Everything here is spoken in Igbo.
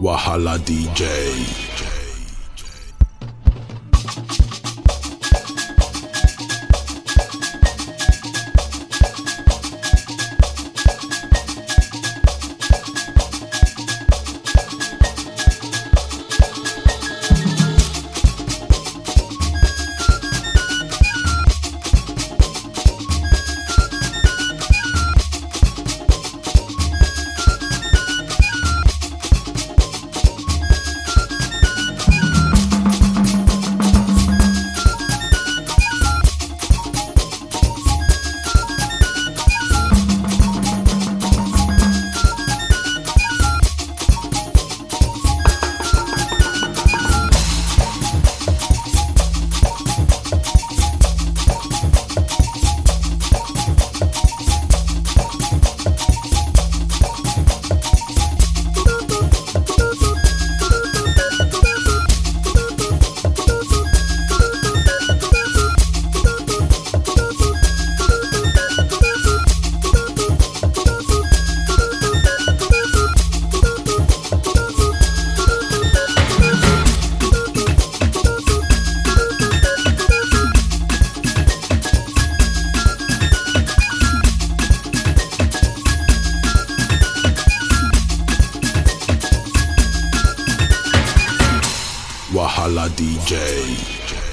Wahala DJ. Hala DJ.